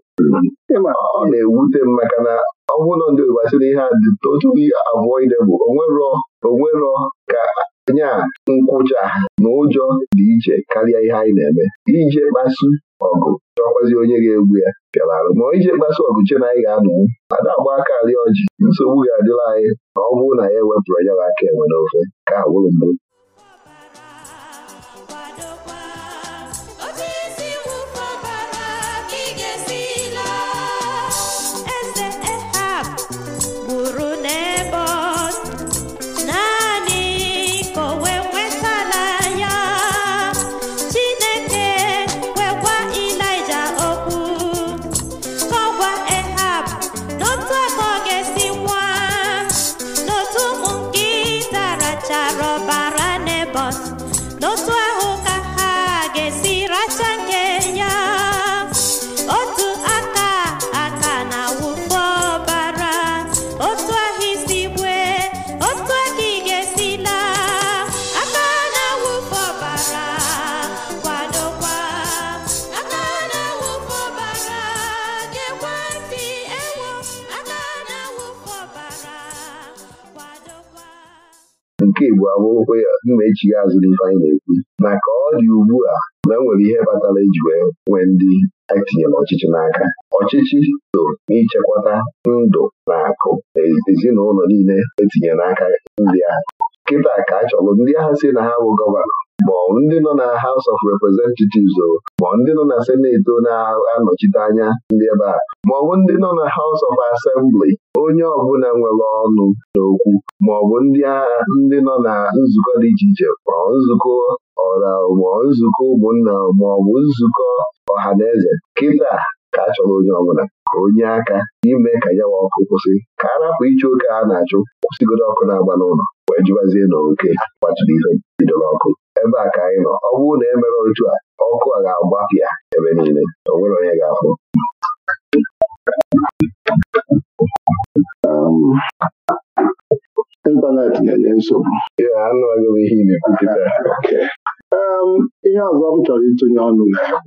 ọ na-ewute m maka na ọ bụrụ na ndị ogbasiri ihe a otu avoidable onwerọ onwerọ ka anya nkwụcha na ụjọ dị iche karịa ihe anyị na-eme ije kpasu ọgụ chọkwazi onye ga-egwu ya bịalarụ ma ije kpasu ọgụ che na anyị ga-anọwu ada agba aka ọjị nsogbu ga-adịla anyị na ọ bụrụ na ya e ewepụrụ ya bụ aka enwe n'ofe ka ha mgbu Igbo abụrụkwa m na-echi ya azụ n'ife anyị na-ekwu na ka ọ dị ugbu a na nwere ihe kpatara iji e wee nwee ndị anyị e ọchịchị n'aka ọchịchị so n'ichekwata ndụ na akụ ezinụlọ niile etinyere n'aka ndị ahụ kịta ka a chọrọ ndị agha si na ha bụ gọvanọ ma ọ ndị nọ na House of Representatives o ma ndị nọ na Senate na-anọchite anya ndị ebe a ma ọ bụ ndị nọ na House of Assembly onye ọbụla nwere ọnụ n'okwu ma ọ bụ ndị ndị nọ na nzukọ dị iche iche ma nzukọ ọra ma nzukọ ụmụnna ma ọ bụ nzukọ ọha na eze kịta ka a chọrọ onye ọbụla ka onye aka ime ka nyawa ọkụ kwụsị ka a rapụ ịchụ oke a na-achụ kwụsịgodo ọkụ na-agba n'ụlọ wee jiwazie na oke kpatụrụ ihe bidoro ọkụ ebe a ka anyị nọ ọ bụrụ na emere otu a ọkụ a ga-agbapịa ebe niile o nwere onye ga-afụ ịntanetị na-enye nsogbu ihe anụ agụghị ihe ibi kịta (laughs) ihe ọzọ m chọrọ ịtụnye ọnụ na ya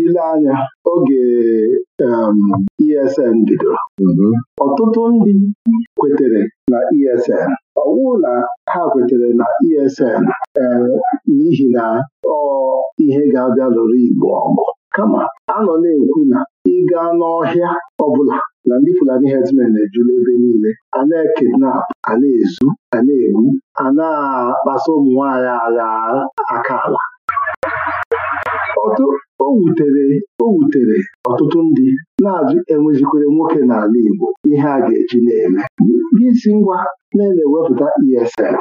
ile anya oge ESN e bidoro mm-hmm. ọtụtụ ndị kwetere na ESN ọwụ na ha kwetere na ESN n'ihi na ọ ihe ga-abịa lụrụ Igbo ọgụ kama anọ na-ekwu na ịga n'ọhịa ọbụla na ndị Fulani herdsmen na-ejula ebe niile a na-ekidnap a na-ezu a na-egbu a na-akpasa ụmụ agha aka ala o wutere o wutere ọtụtụ ndị na-azụ enwezikwere nwoke n'ala Igbo ihe a ga-eji na-eme si ngwa na-ewepụta ESL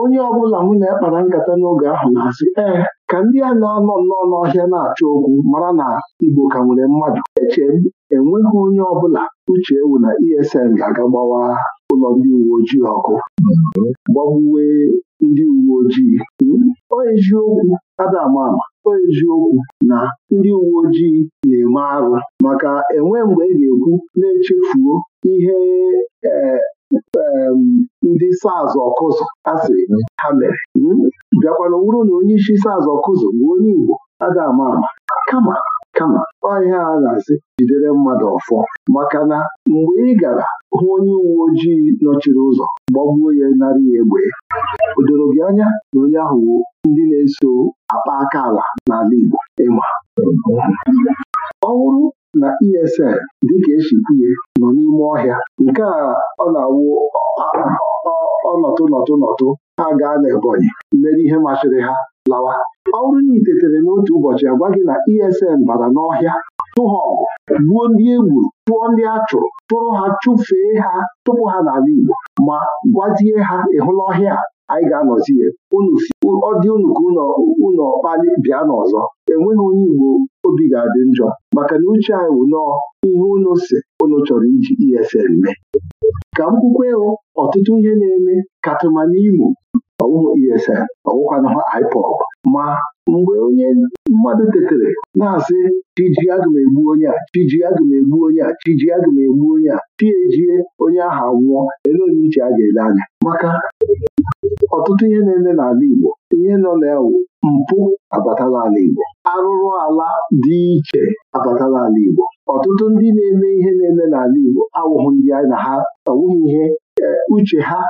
onye ọbụla mụ na-ekpara nkata n'oge ahụ na-asị ee ka ndị a na-anọ nnọọ n'ọhịa na-achọ okwu mara na Igbo ka nwere mmadụ eche enweghị onye bụla uche ewu na ESN ga-aga gbawa ụlọ ndị uwe ojii ọkụ gbagbuwe ndị uwe ojii hmm? ọ eziokwu Adam ama ọ na ndị uwe ojii na-eme arụ maka enwe mgbe ị ga-ekwu na-echefuo ihe ehm, ndị saz ọkụzụ asị ha mere hmm? bịakwana wụrụ na onye isi SARS ọkụzụ bụ onye Igbo Adam ama kama kama ọhịa a na-asị jidere mmadụ ọfọ maka na mgbe ị gara hụ onye uwe ojii nọchiri ụzọ gbagbuo ya narị ya egbe o doro gị anya na onye ahụ ndị na-eso akpa aka ala n'ala Igbo ịma ọ bụrụ na ESN dịka esikwuye nọ n'ime ọhịa nke a ọ na-awụ ọnọtụ nọtụ nọtụ ha gaa n'Ebonyi mere ihe machiri ha lawa Ọrụ bụrụ tetere n'otu ụbọchị agwa gị na ESN bara n'ọhịa tụha ọgụ gbuo ndị egwu, tụọ ndị a chụrụ tụrụ ha chụfee ha tụpụ ha n'ala Igbo ma gwazie ha ịhụla ọhịa anyị ga-anọzi ya ọ dị unu ka ụlọ kpali bịa n'ọzọ enweghị onye Igbo obi ga-adị njọ maka na uche anyị wụ nọọ ihe unu si chọrọ iji ESN mee ka m kwukwe ọtụtụ ihe na-eme katụma n'Imo ọwụhụ ESN ọwụkwana IPOB ma mgbe onye mmadụ tetere na-asị chiji aga m egbu onye a chiji aga m egbu onye a chiji aga m egbu onye a tiejie onye ahụ nwụọ ele onye iche a ga-ele anya maka ọtụtụ ihe na-eme n'ala Igbo ihe nọ na mpụ abatala ala Igbo arụrụ ala dị iche abatala ala Igbo ọtụtụ ndị na-eme ihe na-eme n'ala Igbo awụghị ndị na ha awụghị ihe eh, uche ha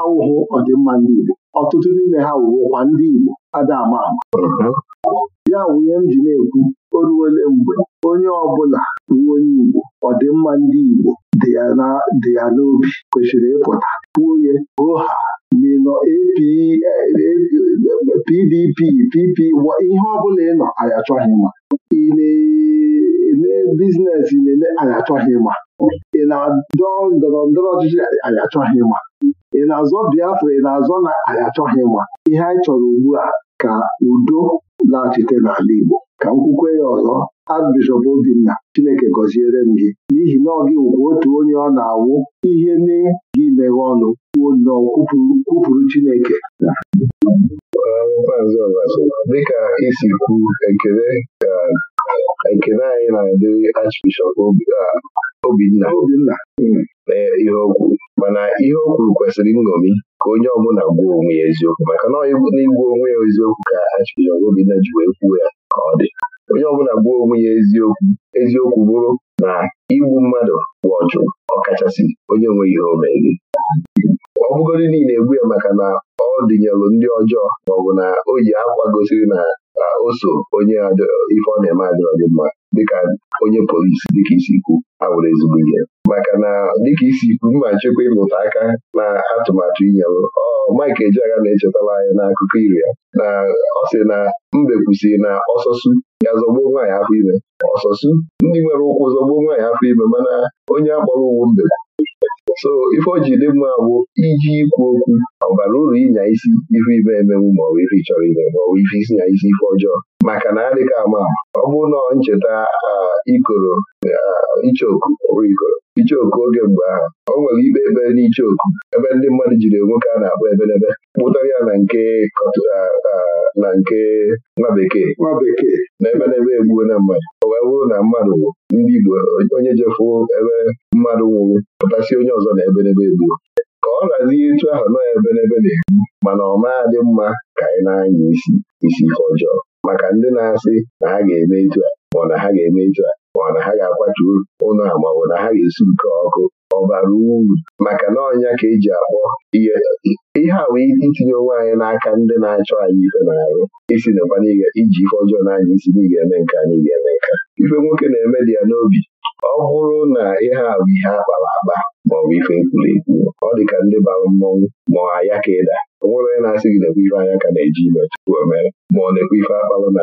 awụghị ọdịmma ndị Igbo ọtụtụ n'ime ha wụwụkwa ndị Igbo ada ama ama ya wụ ihe m ji na-ekwu o ruole mgbe onye ọbụla bụ onye Igbo ọdịmma ndị Igbo dị ya n'obi kwesịrị ịpụta nwunye oha minọ PDP PP ihe ọbụla ịnọ nọ anyị achọghị ma ị na-eme biznes ị na-eme anyị achọghị ma ị na-adọ ndọrọ ndọrọ ọchịchị anyị ma ị na-azọ Biafra ị na-azọ na anyị achọghị ịma ihe anyị chọrọ ugbu a ka udo laghachite n'ala Igbo ka m kwukwe ya ọzọ Archbishop Obinna Chineke gọziere m gị n'ihi na ọ gị wụkwa otu onye ọ na-awụ ihe mee gị meghe ọnụ kwuo nnọọ kwupụrụ Chineke dịka isi kwu ekele ekele anyị na-adịrị Archbishop Obinna ihe okwu mana ihe o kwuru kwesịrị nṅomi ka onye ọbụla gwuo onwe ya eziokwu maka na n'igwu onwe ya eziokwu ka Achịkọba obi na wee kwuo ya ka ọ dị onye ọbụla gwuo onwe ya eziokwu eziokwu bụrụ na igbu mmadụ bụ ọ ọkachasị onye nweghị ihe o meghị ọ bụgodị niile egbu ya maka na ọ dịnyelụ ndị ọjọọ maọbụ na o yi akwa gosiri na ka o so onye ife ọ na-eme adịrọ gị mma dịka onye polisi dịka isi ikwu abụrụ ezigbo ihe maka na dịka isi ikwu mma nchekwa ịlụta aka na atụmatụ inyelụ ọ Mike Ejeagha na-echetara anya n'akụkọ iri ya na ọ sị na mbe kwusịrị na ọsọsụ ya zọgbuo nwaanyị afọ ime ọsọsụ ndị nwere ụkwụ zọgbuo nwaanyị afọ ime mana onye akpọrọ uwe mbe so ife ojii ji iji ikwu okwu ọ bara uru ịnya isi ife ibe emenwu maọbụ ife chọrọ ime maọbụ ife isi nya isi ife ọjọọ maka na adịghị ama ọ bụrụ na ncheta ikoro ichoku ikoro oge mgbe ahụ o nwere ikpe ekpere n'ichoku ebe ndị mmadụ jiri nwoke a na-akpọ ebelebe kpụtara ya na nke na nke nwa bekee nwa bekee na ebelebe egbuo na mmadụ o wee bụrụ na mmadụ ndị Igbo onye jefu ebe mmadụ nwụrụ pụtasị onye ọzọ na ebelebe egbuo ka ọ razie ịtụ ahụ nọ ebelebe na-egbu mana ọ maa dị mma ka anyị na-anya isi isi ihe ọjọọ maka ndị na-asị na ha ga-eme etu a ma ọ na ha ga-eme etu a ma ọ na ha ga-akwatu ụlọ a ma ọ bụ na ha ga-esi nke ọkụ ọ bara uru maka na ọnya ka eji akpọ ihe ihe a wee itinye onwe anyị n'aka ndị na-achọ anyị ife na-arụ isi nakwa n'ihe iji ife ọjọọ na anya isi na ga-eme nke na ga-eme nke ife nwoke na-eme dị ya n'obi ọ bụrụ na ihe a bụ ihe akpara akpa maọbụ ife ekwuru ekwu ọ dị ka ndị bara mmọnwụ ma ọ ya ka ịda o nwere onye na-asị gị na ife anya ka na-eji ime tupu o mere ma ọ na-ekwe ife akpalụ na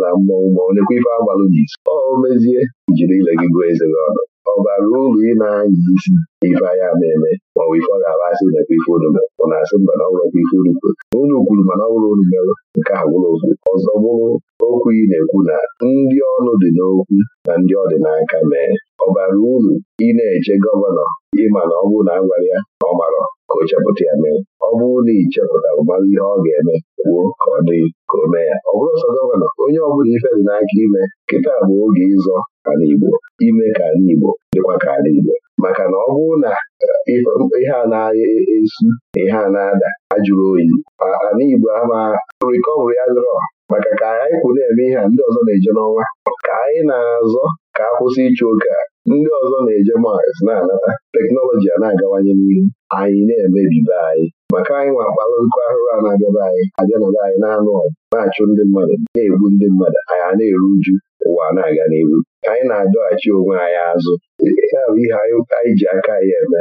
na mmọnwụ ma ọ na-ekwe ife agbalụ n'isi ọ mezie jiri ile gị gụọ eze gị ọnụ ọ bara uru ị na-anya isi ife anya na-eme ma ọ bụ ife ọ ga-aba asị na-ekwe ife unu ọ na-asị mba na ọ bụrụ ife unu kwuru unu kwuru mana ọ bụrụ unu merụ nke a bụrụ okwu ọzọ bụrụ okwu ị na-ekwu na ndị ọnụ dị n'okwu na ndị ọ dị n'aka mee ọ bara uru ị na-eche gọvanọ ịma na ọ bụrụ na agwara ya na ọ marọ ka ya mee ọ bụrụ na ị chepụtara mmanụ ihe ọ ga-eme kwuo ka ọ dị ka o mee ya ọ bụrụ ọsọ gọvanọ onye ọbụla ife dị n'aka ime kịta bụ oge ịzọ ala Igbo ime ka ala Igbo dịkwa ka ala Igbo maka na ọ bụrụ na eh, ihe a na e, e, esu na ihe a na-ada ajụrụ oyi ala Igbo ama rikọvri adịrọ maka ka anyị kwụ na-eme ihe a ndị ọzọ na-eje n'ọnwa ka anyị na-azọ ka a kwụsị ịchụ a. ndị ọzọ na-eje Mars na-anata teknọlọji a na-agawanye n'ihu anyị na-emebibe anyị maka anyị nwa akpala nkụ ahụrụ a na-abịaba anyị abịanaba anyị na-anụ ọgụ na-achụ ndị mmadụ na-egbu ndị mmadụ anyị a na-eru uju ụwa na-aga n'ihu anyị na-adọghachi onwe anyị azụ ya bụ ihe anyị ji aka anyị eme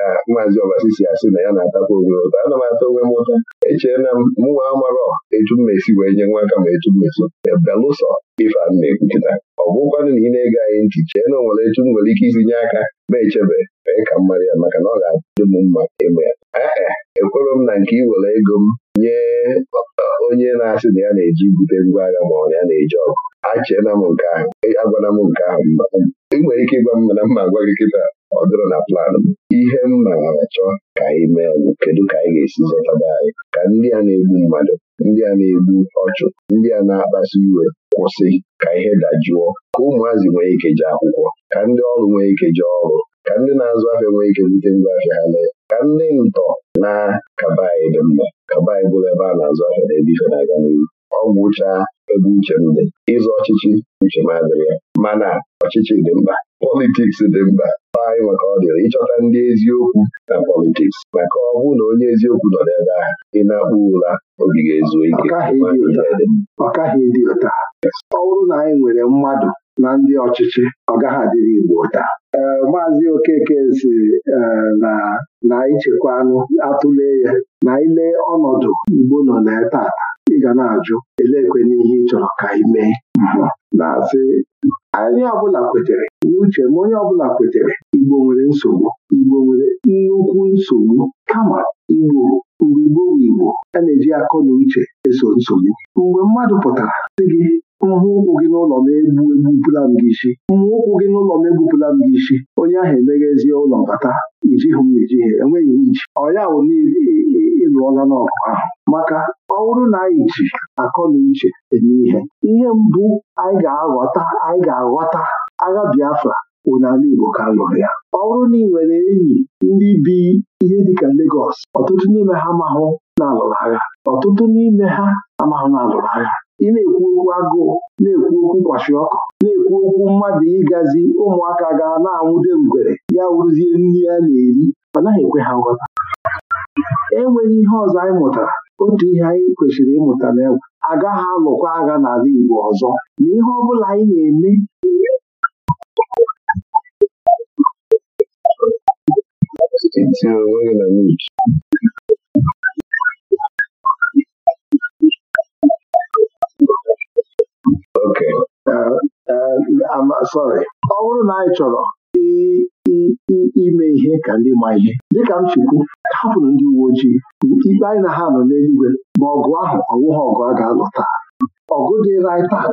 ka maazi Ọbasi si asị na ya na-atakwa onwe ụtọ ana m atọ onwe m ụta echee na mụnwa amarọ etu mmesi wee nye nwa aka ma etu mmesi e belụsọ ife na ọ bụkwanụ na ị na-ege anyị ntị chee na onwere etu m nwere ike isi nye aka ma echebe mee ka mmadụ ya maka na ọ ga-adị m mma eme ya ee ekwere m na nke were ego m nye e, onye na-asị na ya na-eji bute ngwa agha ma ọ ya na-eji ọgụ achee na m nke ahụ e, agwana m nke ahụ ị nwere ike ịgwa m mana mma agwa gị kịta ọ dịrọ na plan m ihe m na-achọ ka anyị mee bụ kedu ka anyị ga-esi zọtaba anyị ka ndị a na-egbu mmadụ ndị a na-egbu ọchụ ndị a na-akpasu iwe kwụsị ka ihe dajụọ ka ụmụazị nwee ike jee akwụkwọ ka ndị ọrụ nwee ike jee ọrụ ka ndị na-azụ ahịa nwee ike bute ngwa ha lee ka ndị ntọ na kaba anyị dị mma kaba anyị bụrụ ebe a na-azụ ahịa na ebe na-aga n'ihu ọ gwụchaa ebe uche m dị ịzụ ọchịchị uche m adịrị ya mana ọchịchị dị mkpa politiks dị mkpa anyị maka ọ dịrị ịchọta ndị eziokwu na politiks maka ọ bụrụ na onye eziokwu nọ n'ebe ahụ ị na-akpụ ụra obi ga-ezu ike ọ bụrụ na anyị nwere mmadụ na ndị ọchịchị ọ gaghị adịrị Igbo ụta maazị Okeke si na na ichekwa anụ atụle ya na ile ọnọdụ Igbo nọ na ata. ga na-ajụ elekwe n'ihe ị chọrọ ka ị mee mhmm. na-asị anyị ọbụla kwetere n'uche ma onye ọbụla kwetere Igbo nwere nsogbu Igbo nwere nnukwu nsogbu kama Igbo mgbe Igbo bụ Igbo a na-eji akọ na uche eso nsogbu mgbe mmadụ pụtara sị gị mmụ ụkwụ gị n'ụlọ m egbu egbupụla m gị isi mmụ ụkwụ gị n'ụlọ m egbupụla m gị isi onye ahụ emeghezie ụlọ bata ijighị m ejighị enweghị iji ọ ya bụ jụọla n'ọkụ ahụ maka ọ bụrụ na anyị ji akọ na uche eme ihe ihe mbụ anyị ga-aghọta anyị ga-aghọta agha Biafra bụ Igbo ka lụrụ ya ọ bụrụ na ị nwere enyi ndị bi ihe dịka Legọs ọtụtụ n'ime ha amahụ na-alụrụ agha ọtụtụ n'ime ha amahụ na-alụrụ agha ị na-ekwu okwu agụụ na-ekwu okwu kwashi ọkụ na-ekwu okwu mmadụ ịgazi ụmụaka ga na-anwụde ngwere ya wụrụzie nri a na-eri ọ naghị ekwe ha nghọta enweghị ihe ọzọ anyị mụtara otu ihe anyị kwesịrị ịmụta na egwu agaghị alụkwa agha n'ala Igbo ọzọ na ihe ọ bụla anyị na-eme uh, uh, uh, ọ bụrụ na anyị chọrọ ime ihe ka ndị ma ihe dịka m chukwu hapụrụ ndị uwe ojii ikpe anyị na ha nọ n'eluigwe ma ọgụ ahụ ọwụghị ọgụ a ga-alụ taa ọgụ dịra anyị tata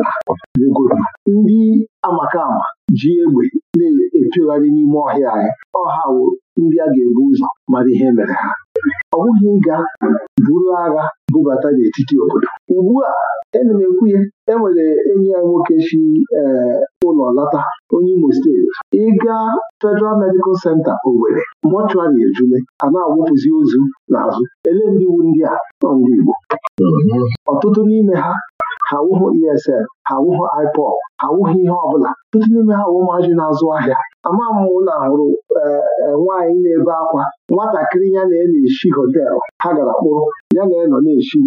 n'obodo ndị amaka ama ji egbe na-efegharị n'ime ọhịa anyị ọha wo ndị a ga-ebu ụzọ mara ihe mere ha ọ bụghị ịga buru agha bubata n'etiti obodo ugbu a enwere e enyi ya nwoke si eh, ụlọ lata onye Imo steeti ịga Federal Medical Center Owerri mọchụarị ejule a na-awụpụzi ozu n'azụ elee ndị iwu ndị a nọ ndị Igbo ọtụtụ n'ime ha ha wụhụ ESL ha awụghị ipop ha awụghị ihe ọbụla ndị n'ime ha awụ na-azụ ahịa ama m ụlọ hụrụ e, e, nwaanyị na-ebe akwa nwatakịrị ya na-eshi họtelụ ha gara kpụrụ ya na nọ na-eshi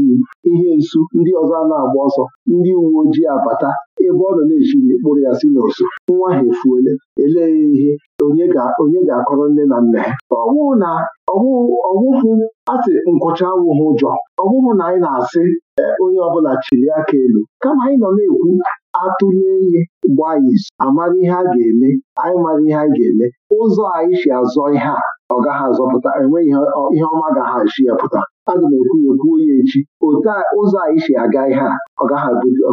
ihe nsu ndị ọzọ a na-agba ọsọ ndị uwe ojii abata ebe ọ nọ na-eshiri ekpụrụ ya si n'oso nwa ha efuole elee ihe onye ga-akọrọ nne na nna ya ọwụ na ọwụhụ asị nkwụcha awụghị ụjọ ọwụhụ na anyị na-asị e, onye ọbụla chiri aka elu kama anyị nọ na-ekwu atụlie ihe gbaa izu amara ihe a ga-eme anyị mara ihe anyị ga-eme ụzọ anyị si azọ ihe a ọ gaghị azọpụta enweghị ihe ọma gaghị ya pụta aga m ekwu ya ekwuo ya echi otu ụzọ anyị si aga ihe a ọ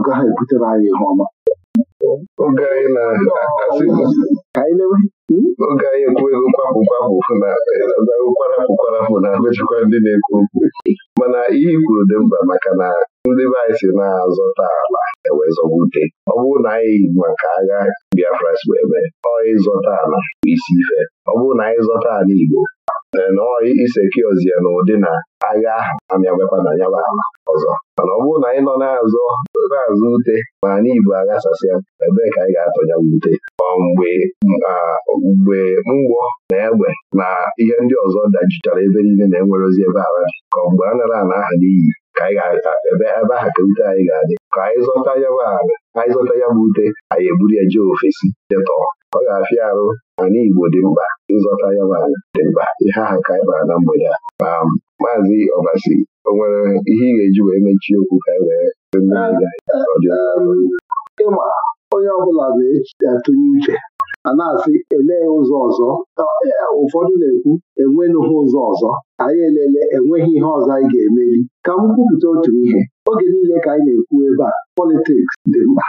gaghị ebutere anyị ihe ọma oge anyị hmm? ekwu ego kwapụ kwapụ kwapụ na mechikwa ndị na-ekwu okwu mana ihe kwuru dị mkpa maka na ndị be anyị si na-azọta ala ewezọbute ọ bụrụ na anyị maka agha Biafra si eme ọ ịzọta ala isi ife ọ bụrụ na anyị zọta ala Igbo nọọyị iseki ozie na ụdị na agha ahụ amịabekwa na nyaba ala ọzọ mana ọ bụrụ na anyị nọ na-azọ na-azụ ute ma anyị Igbo aghasasịa ebee ka anyị ga-atọnya ute mgbe mgbe mgbọ na egbe na ihe ndị ọzọ dajichara ebe niile na-enwerozi ebe ala ka mgbe a nara ala aha n'iyi ka anyị ebe aha ka ute anyị ga-adị ka anyị zọta ya bụ ala anyị zọta ya bụ ute anyị eburu ya jee ofesi jetọọ ọ ga-afịa arụ mana Igbo dị mkpa ịzọta ya bụ ala dị mkpa ihe aha ka anyị kpara na mgbede a ma maazị Ọbasi o nwere ihe ị ga-eji wee mechie okwu ka anyị wee onye ọ bụla ga-atụnye uche a na-asị elee ụzọ ọzọ e, ụfọdụ na-ekwu enwenụghị ụzọ ọzọ anyị elele enweghị ihe ọzọ anyị ga-emeli ka m kwupụta otu ihe oge niile ka anyị na-ekwu ebe a politiks dị mkpa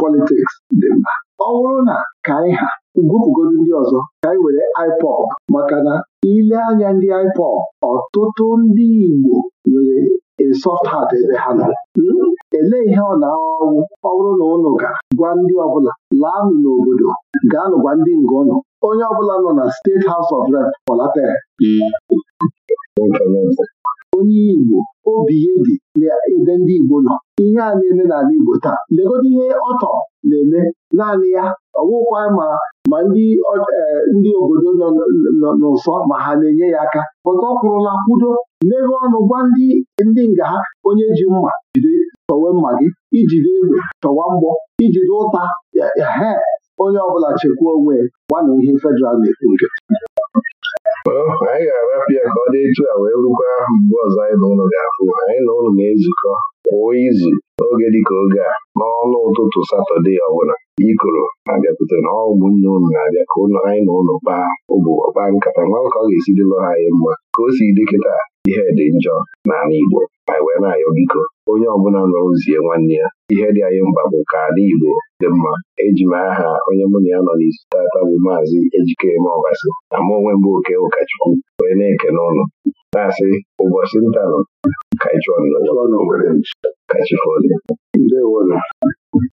politiks dị mkpa ọ bụrụ na ka anyị ha gwupụgodo ndị ọzọ ka anyị were IPOB maka na ile anya ndị IPOB ọtụtụ ndị Igbo nwere soft heart ebe ha nọ hmm? elee ihe ọ na-ahụ ọ bụrụ na ụlọ ga gwa ndị ọbụla laanụ n'obodo gaanụ gwa ndị nga ọnụ, onye ọbụla nọ na steeti House of Rep kpọlatere onye Igbo obi ya di ebe ndị Igbo nọ ihe a na-eme n'ala Igbo taa legodo ihe ọtọ na-eme naanị ya ọwụkwa ma ma ndị e, obodo nọ n'ụsọ ma ha na-enye ya aka pụta ọ kwụrụla kwudo mewe ọnụ gwa ndị nga ha onye ji mma jide tọwe mma gị ijide egbe tọwa mgbọ ijiri ụta he onye ọbụla chekwa onwe gbanụ ihe federal na-ekwu nke anyị ga-arapịa ka ọ dị etu a wee rukwa mgbe ọzọ anyị na ụlọ ga-afụ anyị na ụlọ na-ezukọ kwa izu n'oge dịka oge a n'ọnụ ụtụtụ satọde ọbụla ikoro na-abịakwute na ọgwụ nne ụlọ na-abịa ka ụlọ anyị na ụlọ kpaa ụbụ kpaa nkata nwa ka ọ ga-esi anyị mma ka o si dị kịta ihe dị njọ n'ala Igbo anyị wee na-ayọ biko onye ọbụla nọ ozie nwanne ya ihe dị anyị mba bụ ka ala Igbo dị mma eji m aha onye mụ na ya nọ n'isi tata bụ maazị Ejikeme Ọbasi na mụ onwe mbụ oke ụkọchukwu wee na-eke n'ụlọ na-asị ụbọchị ntanụ kaichọn kachifoli